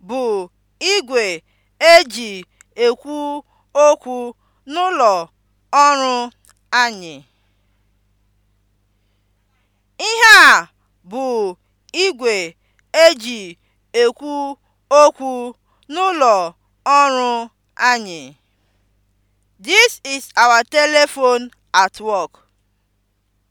E Ihe a bụ igwe eji ekwu okwu n'ụlọ ọrụ anyị. This is our telephone at work.